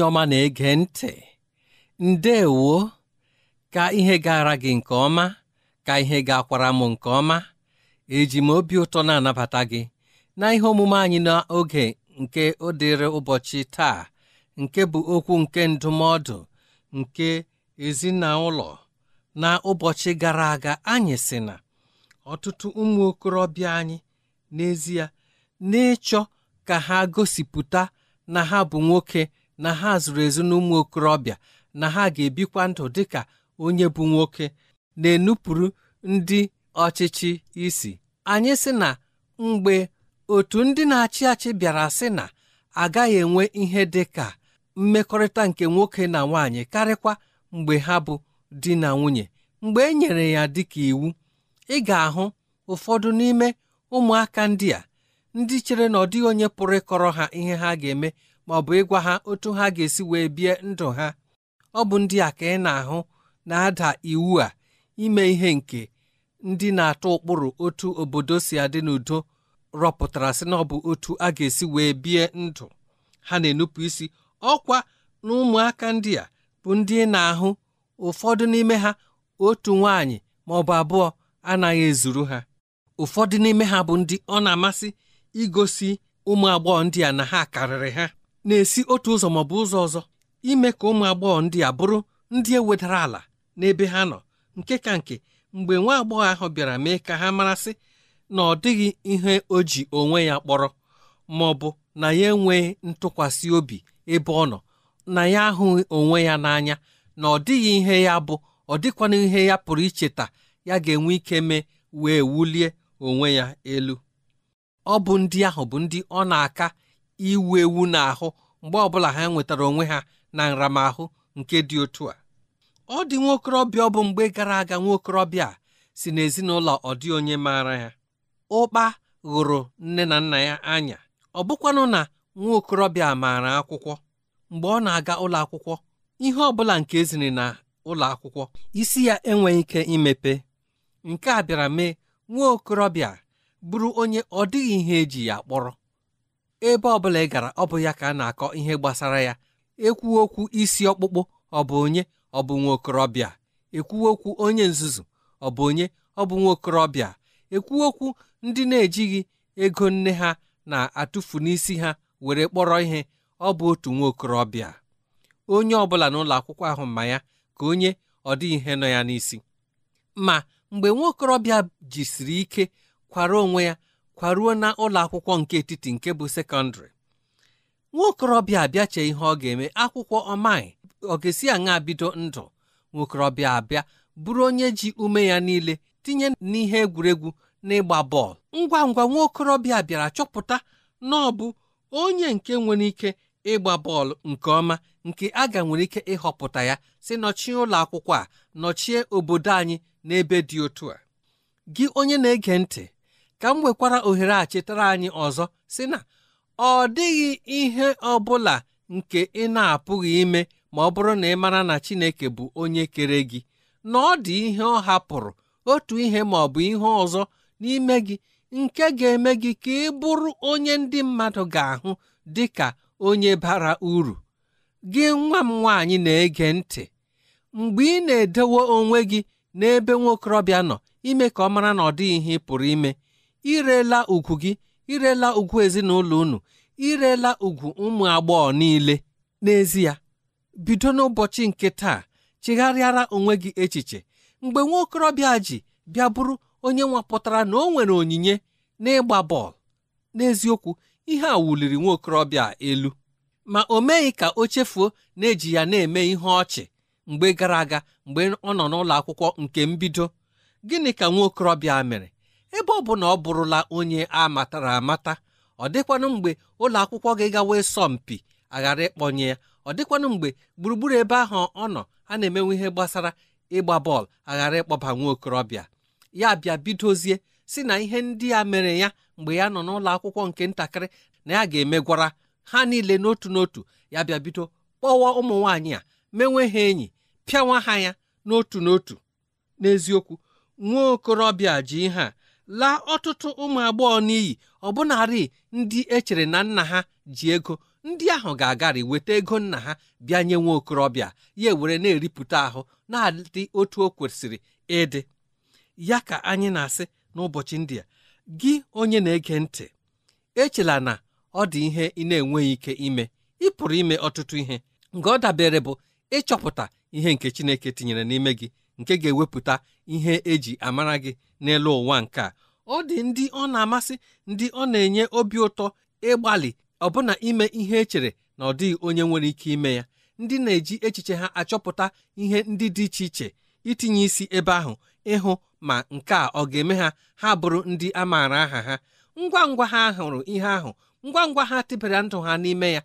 onye ọma na-ege ntị ndewo ka ihe gara gị nke ọma ka ihe ga-akwara m nke ọma eji m obi ụtọ na-anabata gị na ihe omume anyị n'oge nke ọ dịrị ụbọchị taa nke bụ okwu nke ndụmọdụ nke ezinụlọ na ụbọchị gara aga anyị sị na ọtụtụ ụmụ okorobịa anyị n'ezie n'ịchọ ka ha gosipụta na ha bụ nwoke na ha zụrụ ezu na ụmụ okorobịa na ha ga-ebikwa ndụ dịka onye bụ nwoke na-enupụrụ ndị ọchịchị isi anyị sị na mgbe otu ndị na-achị achị bịara sị na agaghị enwe ihe dị ka mmekọrịta nke nwoke na nwanyị karịkwa mgbe ha bụ di na nwunye mgbe e nyere ya dịka iwu ị ga-ahụ ụfọdụ n'ime ụmụaka ndị a ndị chere na ọ dịghị onye pụrụ ịkọrọ ha ihe ha ga-eme ma ọ bụ ịgwa ha otu ha ga-esi wee bie ndụ ha ọ bụ ndị a ka ị na-ahụ na-ada iwu a ime ihe nke ndị na-atụ ụkpụrụ otu obodo si adị n'udo rọpụtara sị na ọ bụ otu a ga-esi wee bie ndụ ha na-enupụ isi ọkwa na ụmụaka ndị a bụ ndị na-ahụ ụfọdụ n'ime ha otu nwaanyị ma ọ bụ abụọ anaghị ezuru ha ụfọdụ n'ime ha bụ ndị ọ na-amasị igosi ụmụ agbọghọ ndị a na ha karịrị ha na-esi otu ụzọ maọbụ ụzọ ọzọ ime ka ụmụ agbọghọ ndị a bụrụ ndị ewedara ala n'ebe ha nọ nke ka nke mgbe nwa agbọghọ ahụ bịara mee ka ha marasị na ọ dịghị ihe o ji onwe ya kpọrọ ma ọ bụ na ya enweghị ntụkwasị obi ebe ọ nọ na ya ahụghị onwe ya n'anya na ọ dịghị ihe ya bụ ọ dịkwana ihe ya pụrụ icheta ya ga-enwe ike mee wee wulie onwe ya elu ọ bụ ndị ahụ bụ ndị ọ na-aka iwu ewu ahụ mgbe ọbụla ha nwetara onwe ha na nramahụ nke dị otu a ọ dị nwaokorobịa ọ bụ mgbe gara aga nwaokorobịa si n'ezinụlọ ọ dị onye maara ya ụkpa ghụrụ nne na nna ya anya ọ bụkwanụ na nwaokorobịa maara akwụkwọ mgbe ọ na-aga ụlọ akwụkwọ ihe ọ bụla nke eziri na ụlọ akwụkwọ isi ya enweghị ike imepe nke a bịara mee nwa okorobịa bụrụ onye ọ dịghị ihe eji ya kpọrọ ebe ọ bụla ị gara ọ bụ ya ka a na-akọ ihe gbasara ya ekwuo okwu isi ọkpụkpụ ọ bụ onye ọ bụ nwa okorobịa ekwuo okwu onye nzuzu ọ bụ onye ọ bụ nwa okorobịa ekwuo okwu ndị na-ejighị ego nne ha na-atụfu n'isi ha were kpọrọ ihe ọ bụ otu nwa okorobịa onye ọ bụla n'ụlọ akwụkwọ ahụ ma ya ka onye ọ dịghị ihe nọ ya n'isi ma mgbe nwa okorobịa jisiri ike kwara onwe ya kwaruo na ụlọ akwụkwọ nke etiti nke bụ sekọndịrị nwa okorobịa abịa chee ihe ọ ga-eme akwụkwọ ọmaị ọ ga-esi aṅa bido ndụ nwa okorobịa abịa bụrụ onye ji ume ya niile tinye n'ihe egwuregwu na ịgba bọọlụ ngwa ngwa nwa okorobịa bịara chọpụta na ọ bụ onye nke nwere ike ịgba bọọlụ nke ọma nke a ga nwere ike ịhọpụta ya si nọchie ụlọ akwụkwọ a nọchie obodo anyị n'ebe dị otu a gị onye na-ege ntị ka m nwekwara ohere a chetara anyị ọzọ si na ọ dịghị ihe ọ bụla nke ị na-apụghị ime ma ọ bụrụ na ị mara na Chineke bụ onye kere gị na ọ dị ihe ọ hapụrụ otu ihe ma ọ bụ ihe ọzọ n'ime gị nke ga-eme gị ka ị bụrụ onye ndị mmadụ ga-ahụ dị ka onye bara uru gị nwa m nwaanyị na-ege ntị mgbe ị na-edewo onwe gị n'ebe nwokorobịa nọ ime ka ọ mara na ọ dịghị ihe ị pụrụ ime irela ugwu gị irela ugwu ezinụlọ unu irela ugwu ụmụ agbọghọ niile n'ezie bido n'ụbọchị nke taa chegharịara onwe gị echiche mgbe nwa okorobịa ji bịa bụrụ onye nwapụtara na o nwere onyinye n'ịgba bọọlụ n'eziokwu ihe a wuliri nwa okorobịa elu ma o meghị ka o chefuo na-eji ya na-eme ihe ọchị mgbe gara aga mgbe ọ nọ n'ụlọ akwụkwọ nke mbido gịnị ka nwa okorobịa mere ebe ọ bụ na ọ bụrụla onye a matara amata ọ dịkwanụ mgbe ụlọ akwụkwọ gị gawa asọmpi aghara ịkpọnye ya ọ dịkwanụ mgbe gburugburu ebe ahụ ọ nọ a na-emenwe ihe gbasara ịgba bọọlụ aghara ịkpọba nwa okorobịa ya bịa bidozie si na ihe ndị a mere ya mgbe ya nọ n'ụlọ akwụkwọ nke ntakịrị na ya ga-emegwara ha niile n'otu n'otu ya bịa bido kpọwa ụmụ nwaanyị a menwe ha enyi pịawa ha ya n'otu n'otu n'eziokwu nwa okorobịa ji ihe a laa ọtụtụ ụmụ agbọghọ n'iyi ọbụnarị ndị echere na nna ha ji ego ndị ahụ ga-agarị weta ego nna ha bịa nye nwa okorobịa ya ewere na-eripụta ahụ na-adị otu o kwesịrị ịdị ya ka anyị na-asị n'ụbọchị ndị a gị onye na-ege ntị echela na ọ dị ihe ị na-enweghị ike ime ị pụrụ ime ọtụtụ ihe nke ọ dabere bụ ịchọpụta ihe nke Chineke tinyere n'ime gị nke ga-ewepụta ihe eji amara gị n'elu ụwa nke a ọ dị ndị ọ na-amasị ndị ọ na-enye obi ụtọ ịgbalị ọbụna ime ihe echere na ọ dịghị onye nwere ike ime ya ndị na-eji echiche ha achọpụta ihe ndị dị iche iche itinye isi ebe ahụ ịhụ ma nke a ọ ga-eme ha ha bụrụ ndị a maara aha ha ngwa ngwa ha hụrụ ihe ahụ ngwa ngwa ha tịbara ndụ ha n'ime ya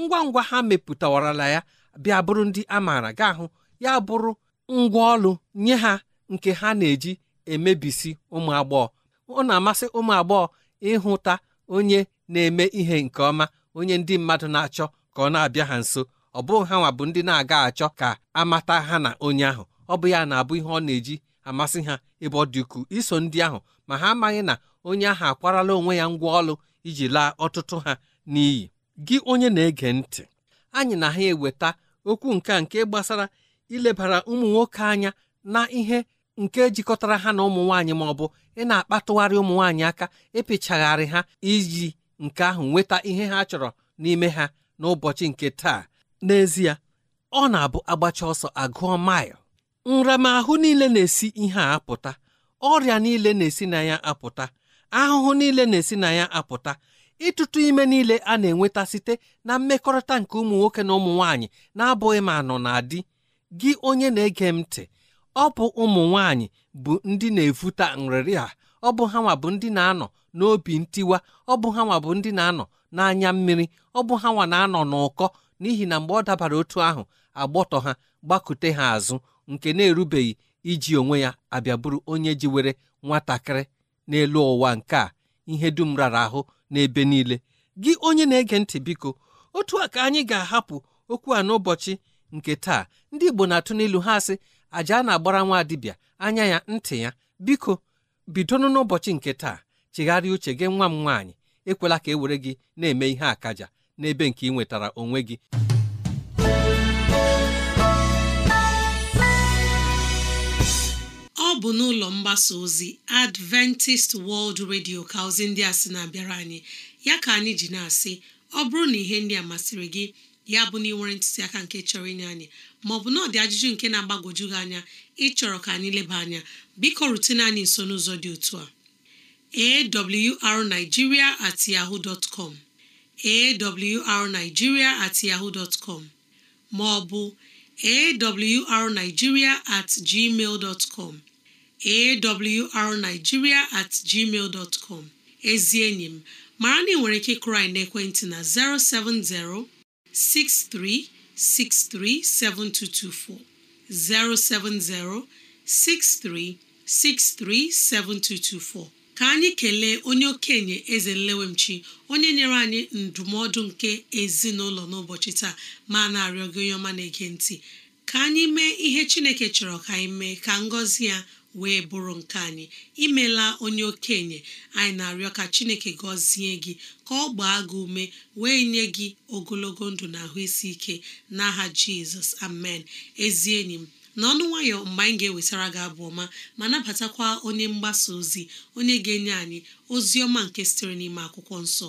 ngwa ngwa ha mepụtawarala ya bịa bụrụ ndị a maara ga ahụ ya bụrụ ngwa ọlụ nye ha nke ha na-eji emebisi ụmụ agbọghọ ọ na-amasị ụmụ agbọghọ ịhụta onye na-eme ihe nke ọma onye ndị mmadụ na-achọ ka ọ na-abịa ha nso ọ bụrụ ha nwa bụ ndị na-aga achọ ka amata ha na onye ahụ ọ bụ ya na-abụ ihe ọ na-eji amasị ha ebe ọ dị ukwuu iso ndị ahụ ma ha amaghị na onye ahụ akwarala onwe ya ngwa ọlụ iji laa ọtụtụ ha n'iyi gị onye na-ege ntị anyị na ha eweta okwu nke a nke gbasara ilebara ụmụ nwoke anya na ihe nke jikọtara ha na ụmụ nwaanyị ma ọ bụ ị na-akpatụgharị ụmụ nwaanyị aka ịpịchagharị ha iji nke ahụ nweta ihe ha chọrọ n'ime ha n'ụbọchị nke taa n'ezie ọ na-abụ agbacha ọsọ agụọ maịl nramahụ niile na-esi ihe a apụta ọrịa niile na-esi na ya apụta ahụhụ niile na-esi na ya apụta ịtụtụ ime niile a na-enweta site na mmekọrịta nke ụmụ nwoke na ụmụ nwaanyị na-abụghị ma nọ na di gị onye na-ege m ntị ọ bụ ụmụ nwanyị bụ ndị na-efuta nrịrị a ọ bụ ha nwa bụ ndị na-anọ n'obi ntiwa ọ bụ ha nwa bụ ndị na-anọ n'anya mmiri ọ bụ ha nwa na-anọ n'ụkọ n'ihi na mgbe ọ dabara otu ahụ agbọtọ ha gbakute ha azụ nke na-erubeghị iji onwe ya abịa bụrụ onye jiwere nwatakịrị n'elu ụwa nke a ihe dum rara ahụ n'ebe niile gị onye na-ege ntị biko otu a ka anyị ga-ahapụ okwu a n'ụbọchị nke taa ndị Igbo na-atụ n'ilu ha asị aja a na-agbara nwa dibịa anya ya ntị ya biko bidonụ n'ụbọchị nke taa chigharị uche gị nwa m nwaanyị ekwela ka e were gị na-eme ihe akaja n'ebe nke ị nwetara onwe gị ọ bụ n'ụlọ mgbasa ozi Adventist World Radio ka ozi ndị a sị na-abịara anyị ya ka anyị ji na-asị ọ bụrụ na ihe ndị a masịrị gị ya bụ na ị nwere ntụziaka nke chọrọ inye anyị bụ na ọ dị ajụjụ nke na-agbagwoju gị anya ịchọrọ ka anyị leba anya biko rutene anyị nso n'ụzọ dị otu a awrnigeria at yahoo dot com awrnigeria at yahoo dot com maọbụ awrnigeria at gmail dot com awrnigeria at gmail dot com ezi enyi m mara na ị nwere ike kụrụ anyị n'ekwentị na 070 63 637224 070 7224 ka anyị kelee onye okenye eze nlewemchi onye nyere anyị ndụmọdụ nke ezinụlọ n'ụbọchị taa ma na-arịọ gị onye ọma na-ege ntị ka anyị mee ihe chineke chọrọ ka anyị mee ka ngọzi ya wee bụrụ nke anyị imela onye okenye anyị na-arịọ ka chineke gọzie gị ka ọ gbaa gị ume wee nye gị ogologo ndụ na ahụ isi ike n'aha jizọs amen ezi enyi m na ọnụ nwayọ mgbe anyị ga-ewetara gị abụ ọma ma nabatakwa onye mgbasa ozi onye ga-enye anyị ozi ọma nke sitere n'ime akwụkwọ nsọ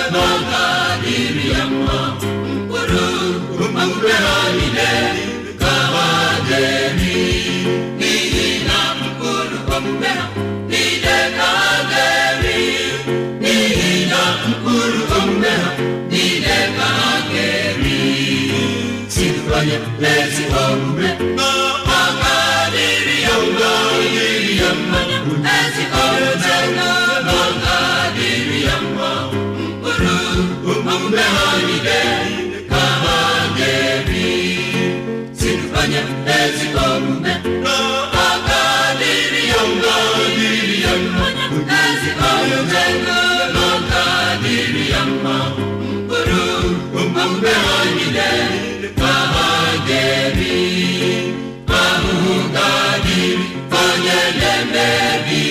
hombre, ebi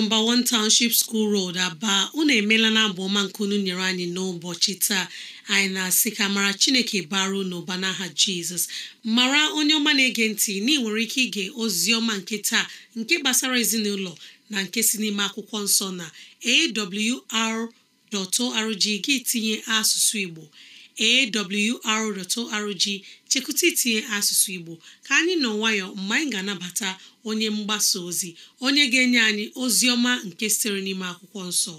nọmba 1 Township School Road Aba unu emeela na abụ ọma nke unu nyere anyị n'ụbọchị taa anyị na-asị ka mara Chineke bara n'ụba n'aha Jizọs mara onye ọma na-ege ntị na nwere ike ige ozi ọma nke taa nke gbasara ezinụlọ na nke si n'ime akwụkwọ nsọ na awr.org gị tinye asụsụ Igbo awr.org chekwụta itinye asụsụ Igbo ka anyị nọ nwayọ mgbe anyị ga-anabata onye mgbasa ozi onye ga-enye anyị ozi ọma nke sitere n'ime akwụkwọ nsọ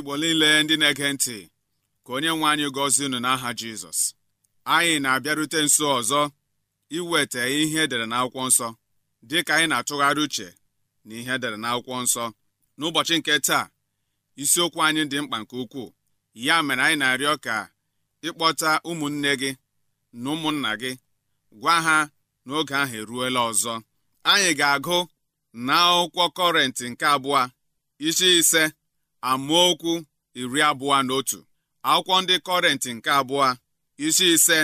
igbo niile ndị na-ege ntị ka onye nwe anyị gọzie unu n'aha jizọs anyị na-abịarute nso ọzọ iweta ihe edere n'akwụkwọ nsọ dị ka anyị na-atụgharị uche na ihe edere n'akwụkwọ nsọ n'ụbọchị nke taa isiokwu anyị dị mkpa nke ukwuu ya mere anyị na-arịọ ka ịkpọta ụmụnne gị na ụmụnna gị gwa ha n'oge ahụ eruola ọzọ anyị ga-agụ na akwụkwọ kọrentị nke abụọ isi ise amaokwu iri abụọ na otu akwụkwọ ndị kọrentị nke abụọ isi ise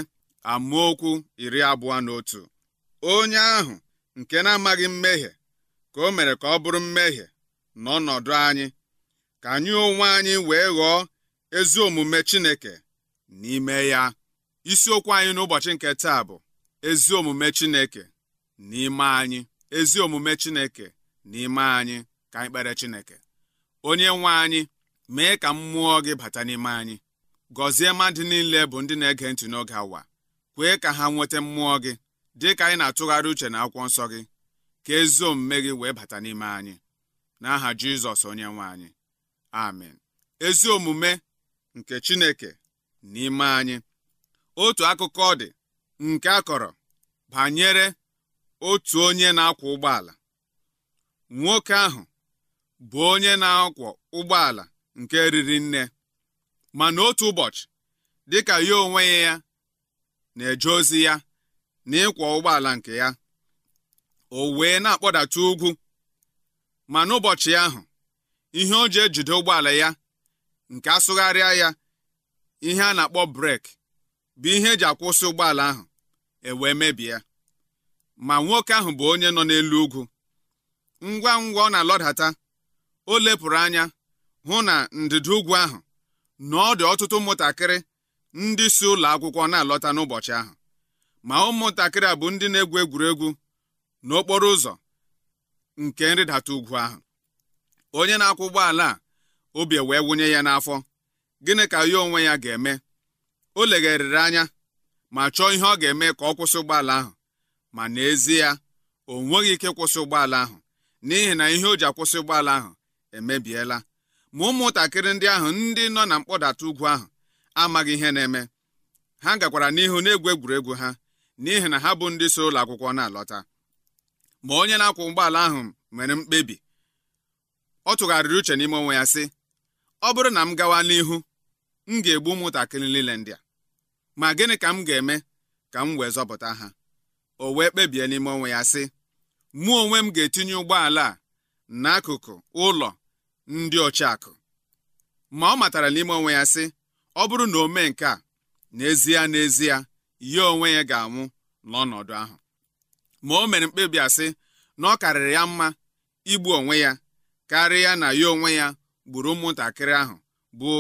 okwu iri abụọ na otu onye ahụ nke na-amaghị mmehie ka o mere ka ọ bụrụ mmehie n'ọnọdụ anyị ka anyị onwe anyị wee ghọọ ezi omume Chineke n'ime ya isiokwu anyị n'ụbọchị nke taa bụ ezi omume Chineke n'ime anyị ezi omume Chineke n'ime anyị ka anyị kpere Chineke onye nwe anyị mee ka mmụọ gị bata n'ime anyị gọzie mmadụ niile bụ ndị na-ege ntị n'oge awa kwee ka ha nweta mmụọ gị dị ka anyị na-atụgharị uche na akwụkwọ nsọ gị ka ezi omume gị wee bata n'ime anyị n'aha Jizọs onye nwe anyị amen ezi omume nke Chineke n'ime anyị otu akụkọ dị nke a kọrọ banyere otu onye na-akwọ ụgbọala nwoke ahụ bụ onye na-akwọ ụgbọala nke riri nne ma n'otu ụbọchị dịka ya onwe ya na-eje ozi ya na ịkwọ ụgbọala nke ya o wee na-akpọdata ugwu ma n'ụbọchị ahụ ihe o ji ejide ụgbọala ya nke asụgharịa ya ihe a na-akpọ breki bụ ihe eji akwụsị ụgbọala ahụ ewee mebie ma nwoke ahụ bụ onye nọ n'elu ugwu ngwa ngwa ọ na-alọdata o lepụrụ anya hụ na ndịda ugwu ahụ na ọ dị ọtụtụ ụmụntakịrị ndị si ụlọ akwụkwọ na-alọta n'ụbọchị ahụ ma ụmụntakịrị a bụ ndị na-egwu egwuregwu n'okporo ụzọ nke nrịdata ugwu ahụ onye na-akwụ ụgbọala a obi wee wụnye ya n'afọ gịnị ka ya onwe ya ga-eme o legharịrị anya ma chọọ ihe ọ ga-eme ka ọ kwụsị ụgbọala ahụ ma n'ezie o nweghị ike kwụsị ụgbọala ahụ n'ihi na ihe o ji akwụsị ụgbọala ahụ emebiela ma ụmụntakịrị ndị ahụ ndị nọ na mkpọdata ugwu ahụ amaghị ihe na-eme ha gakwara n'ihu na-egwu egwuregwu ha n'ihi na ha bụ ndị so ụlọ akwụkwọ na-alọta ma onye na akwa ụgbọala ahụ nwere mkpebi ọ tụgharịrị uche n'ime onwe ya sị ọ bụrụ na m gawa n'ihu m ga-egbu ụmụntakịrị niile ndị a ma gịnị ka m ga-eme ka m wee zọpụta ha o wee kpebie n'ime onwe ya sị mụ onwe m ga-etinye ụgbọala a n'akụkụ ụlọ ndị ọchịakụ ma ọ matara n'ime onwe ya sị ọ bụrụ na o mee nke a n'ezie n'ezie ya onwe ya ga-anwụ n'ọnọdụ ahụ ma o mere mkpebi asị na ọ karịrị ya mma igbu onwe ya karịa na ya onwe ya gburu ụmụntakịrị ahụ bụ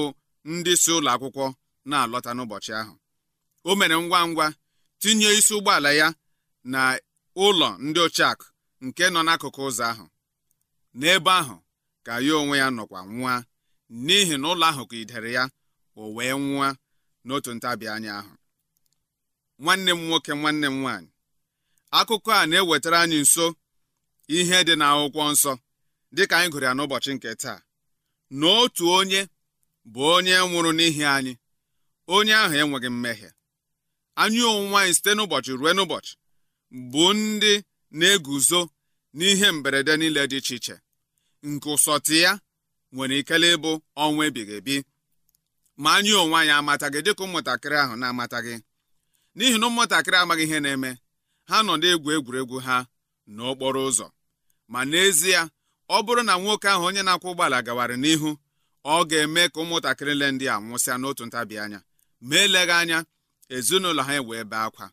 ndị si ụlọ akwụkwọ na-alọta n'ụbọchị ahụ o mere ngwa ngwa tinye isi ụgbọala ya na ụlọ ndị ochakụ nke nọ n'akụkụ ụzọ ahụ n'ebe ahụ ka ya onwe ya nọkwa nwa n'ihi na ụlọ ahụ ka idere ya o wee nwa n'otu ntabi anya ahụ nwanne m nwoke nwanne m nwaanyị akụkọ a na-ewetara anyị nso ihe dị n'akwụkwọ nsọ dịka anyị gụrụ ya n'ụbọchị nke taa na otu onye bụ onye nwụrụ n'ihi anyị onye ahụ enweghị mmehie anyị onwe anyị site n'ụbọchị ruo n'ụbọchị bụ ndị na-eguzo n'ihe mberede niile dị iche iche nke ụsọtị ya nwere ikele ịbụ ọnwa ebighị ebi ma anyị onwe anyị amataghị dịka ụmụntakịrị ahụ na-amataghị n'ihi na ụmụntakịrị amaghị ihe na-eme ha nọ na-egwu egwuregwu ha n'okporo ụzọ ma n'ezie ọ bụrụ na nwoke ahụ onye na-akwụ ụgbọala gawara n'ihu ọ ga-eme ka ụmụntakịrị le ndị a nwụsịa n'otu ntabi anya ma eleghị anya ezinụlọ ha ewee bee akwa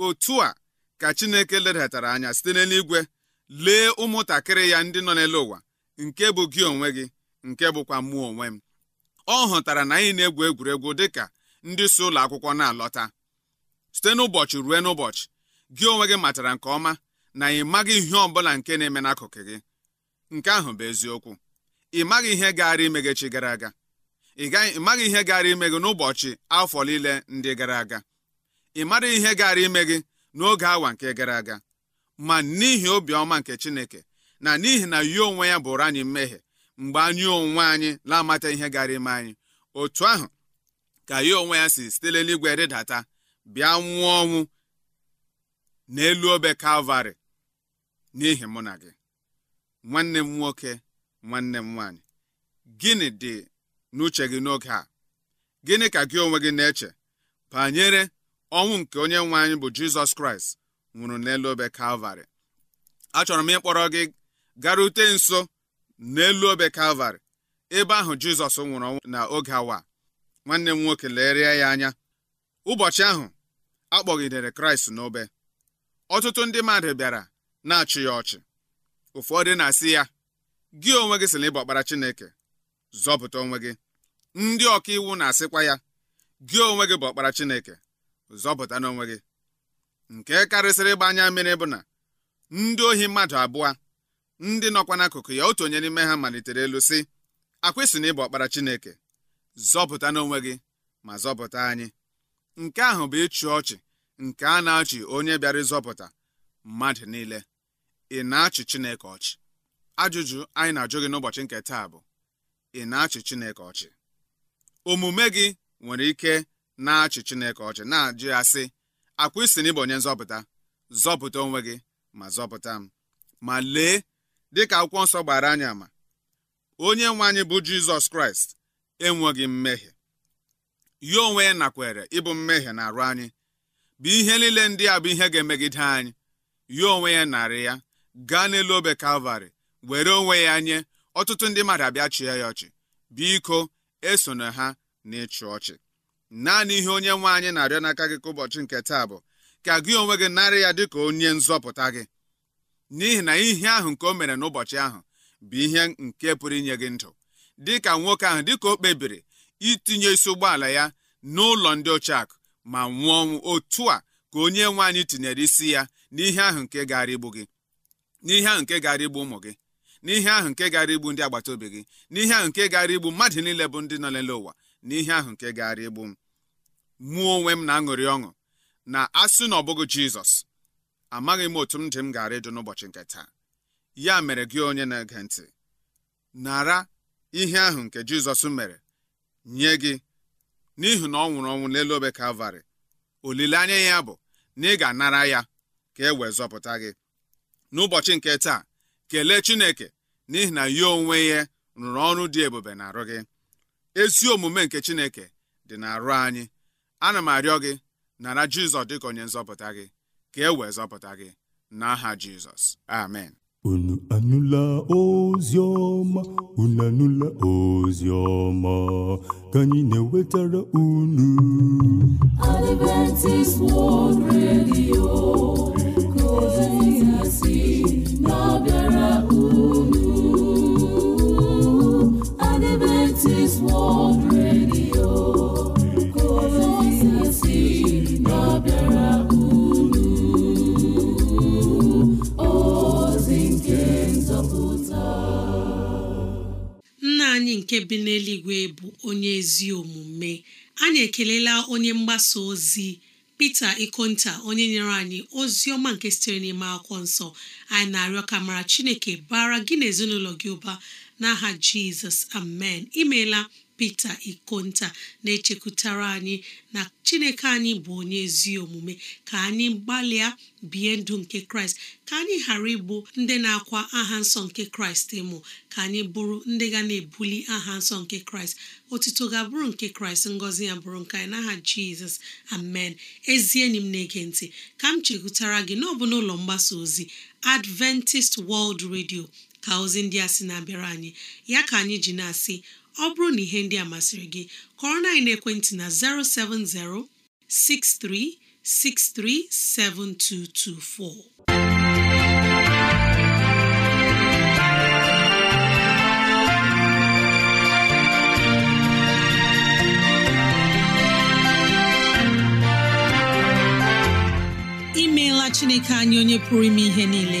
otu a ka Chineke ledatara anya site n'eluigwe lee ụmụntakịrị ya ndị nọ n'elu ụwa nke bụ gị onwe gị nke bụkwa mmụọ onwe m ọ hụtara na anyị na-egwu egwuregwu dị ka ndị si ụlọ akwụkwọ na-alọta site n'ụbọchị ruo n'ụbọchị gị onwe gị matara nke ọma na ị maghị ihe ọ bụla nke na-eme n'akụkụ gị nke ahụ bụ eziokwu ị maghị ihe gaara ime gị chi gara aga ị maghị ihe gaara ime gị n'ụbọchị afọ niile ndị gara aga ị mara ihe gara ime gị n'oge awa nke gara aga ma n'ihi obiọma nke chineke na n'ihi na yi onwe ya bụrụ anyị mmehie mgbe anyị onwe anyị na-amata ihe gara ime anyị otu ahụ ka ya onwe ya si sitere n'igwe rịdata bịa nwụọ ọnwụ n'elu obe kalvarị n'ihi mụ na gị nwanne m nwoke nwanne m nwaanyị gịnị dị n'uche gị n'oge a gịnị ka gị onwe gị na-eche banyere ọnwụ nke onye nwe anyị bụ jizọs kraịst nwụrụ n'elu obe kalvarị achọrọ m ịkpọrọ gị garute nso n'elu obe kalvarị ebe ahụ jizọs nwụrụ ọnwụ na oge awa nwanne m nwoke lerie ya anya ụbọchị ahụ akpọgidere kraịst n'obe ọtụtụ ndị mmadụ bịara na-achị ya ọchị ụfọdụ na-asị ya gị onwe gị sị na ịbụ ọkpara chineke zọpụta onwe gị ndị ọka iwu na-asịkwa ya gị onwe gị bụ ọkpara chineke zọpụta n'onwe gị nke karịsịrị ịgba anya mmiri bụ na ndị ohi mmadụ abụọ ndị nọkwa n'akụkụ ya otu onye n'ime ha malitere elu sị akwịsị na ịbụ ọkpara Chineke zọpụta n'onwe gị ma zọpụta anyị nke ahụ bụ ịchị ọchị nke a na-achị onye bịara ịzọpụta mmadụ niile ị na-achị Chineke ọchị ajụjụ anyị na-ajụ gị n'ụbọchị nke taa bụ ị na-achị Chineke ọchị omume gị nwere ike na-achị chineke ọchị na-ajụ ya sị akwa isi na onye nzọpụta zọpụta onwe gị ma zọpụta m ma lee dịka akwụkwọ nsọ gbara anyị ama onye nwe anyị bụ jizọs kraịst enweghị mmehie ya onwe ya nakwere ịbụ mmehie na arụ anyị bụ ihe niile ndị a bụ ihe ga-emegide anyị ya onwe ya narị ya gaa n'elu obe kalvarị were onwe ya nye ọtụtụ ndị mmadụ abịa chie ya ọchị biko esona ha na ọchị naanị ihe onye nwe anyị na-arịọ n'aka gị ka ụbọchị nke taa bụ ka gị onwe gị narị ya dị ka onye nzọpụta gị n'ihi na ihe ahụ nke o mere n'ụbọchị ahụ bụ ihe nke pụrụ inye gị ndụ dịka nwoke ahụ dị ka o kpebiri itinye isi ụgbọala ya n'ụlọ ndị ochiakụ ma nwụọ ọnwụ otu a ka onye nwe anyị tinyere isi ya n'ihe ahụ nke gara igbu gị n'ihe ahụ nke gara igbu ụmụ gị n'ihe ahụ nke gara igbu ndị agbata obi gị n'ihe ahụ nke gara igbu mmadụ niile bụ ndị nọ n'elu ụwa n'ihe ahụ nke gaara igbu m mụọ onwe m na-aṅụrị ọṅụ na asị na ọ bụghị jizọs amaghị m otu m dị m gaara ịdụ n'ụbọchị nke taa ya mere gị onye na-ege ntị nara ihe ahụ nke jizọs mere nye gị n'ihi na ọ nwụrụ ọnwụ n'elu obe kalvarị olileanya ya bụ na ị ga-anara ya ka e wee zọpụta gị n'ụbọchị nke taa kelee chineke n'ihi na ya onwe ya rụrụ ọrụ dị ebube na arụ gị ezi omume nke chineke dị n'arụ anyị ana m arịọ gị nara jizọs dịka onye nzọpụta gị ka e wee zọpụta gị n'aha jizọs amen unu anụla ozi ọma unu anụla ozi ọma ka anyị na-ewetara unu Adventist World Radio ka ozi nke bi n'eluigwe bụ onye ezi omume anyị ekelela onye mgbasa ozi pete Ikonta onye nyere anyị ozi ọma nke sitere n'ime akwụkwọ nsọ anyị na-arịọ ka mara Chineke bara gị na ezinụlọ gị ụba n'aha jizọs amen imeela pete ikonta na-echekwutara anyị na chineke anyị bụ onye ezi omume ka anyị gbalịa bie ndụ nke kraịst ka anyị ghara ịbụ ndị na-akwa aha nsọ nke kraịst ịmụ ka anyị bụrụ ndị ga na-ebuli aha nsọ nke kraịst otuto ga-abụrụ nke kraịst ngọzi ya bụrụ nke anyị n'aha jizọs amen ezi enyi m na-ege ntị ka m chekwutara gị n'ọbụ n'ụlọ mgbasa ozi adventist world radio ka ozi ndị a sị na-abịara anyị ya ka anyị ji na-asị ọ bụrụ na ihe ndị a masịrị gị kọrọ na na na 07063637224 imeela chineke anyị onye pụrụ ime ihe niile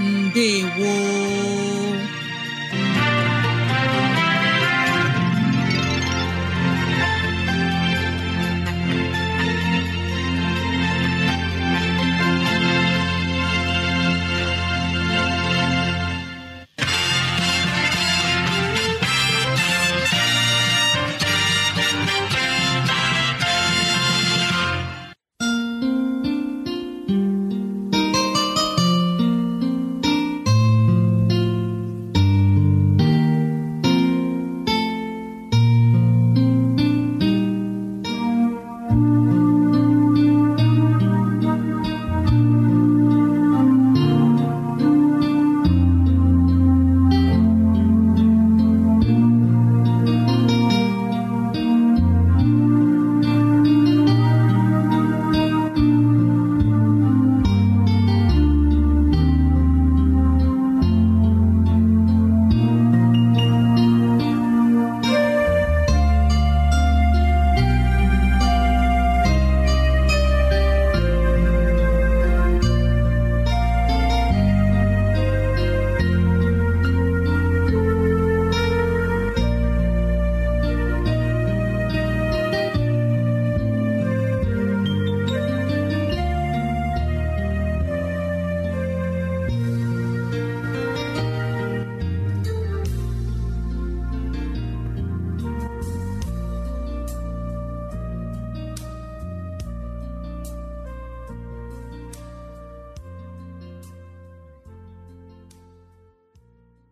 ndewo